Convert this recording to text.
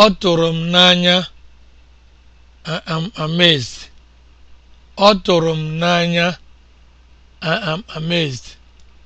Ọ tụrụ m n'anya, I am amazed.